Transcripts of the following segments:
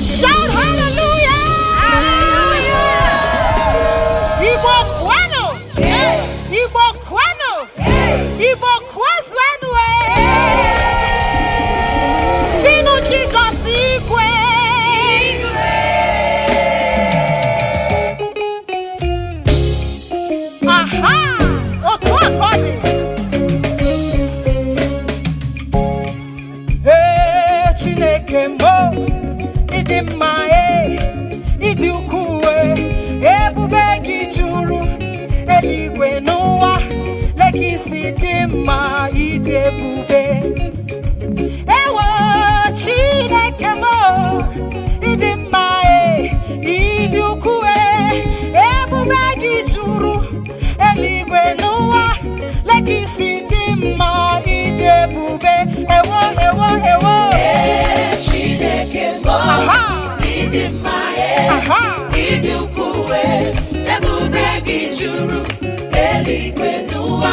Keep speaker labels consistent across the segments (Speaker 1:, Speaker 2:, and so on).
Speaker 1: somebody. isi dị mma ịdị ebube ewo Chineke m ịdị mma e ịdị ukwuu ebube gị juru eluigwe n'ụwa leka isi dị mma ịdị ebube ewo ewo ewo Chineke m ịdị mma e ịdị ukwuu ebube gị juru eluigwe n'ụwa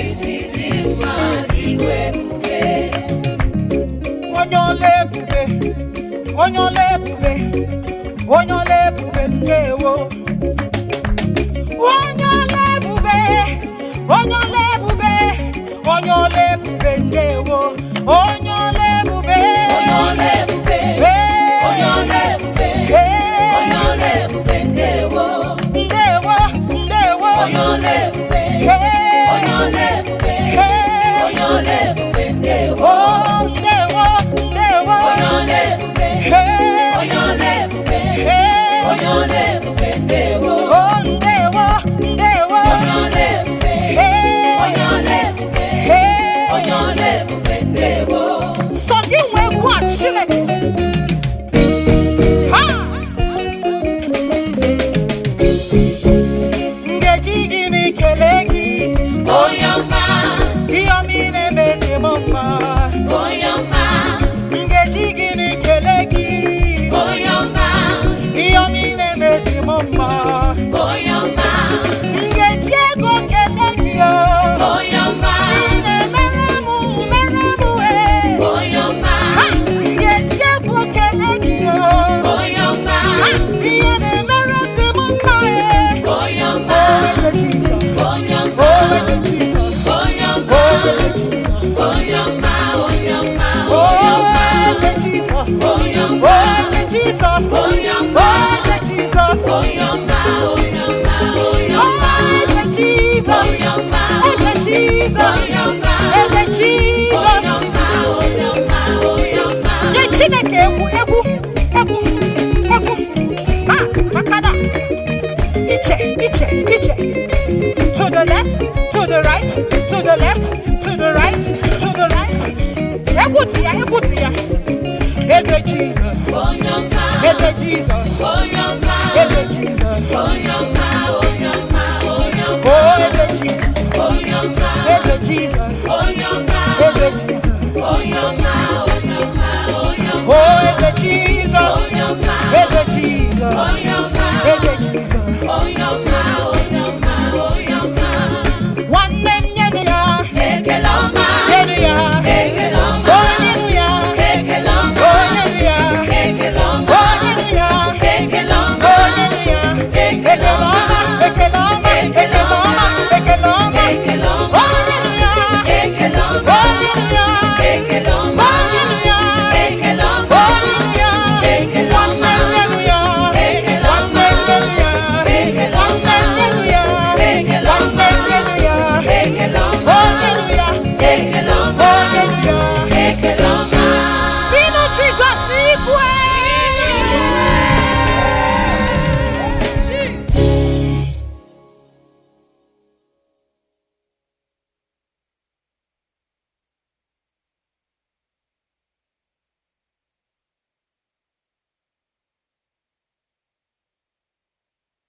Speaker 1: isi dị iwe ebube onye ọla ebube onye ọla ebube onye ọla ebube ndewo onye ọla ebube onye ọla ebube onye ọla ebube onye ọla ebube pas Jesus. Oh, Ekwuti ya ekwuti ya eze jizọs eze jizọs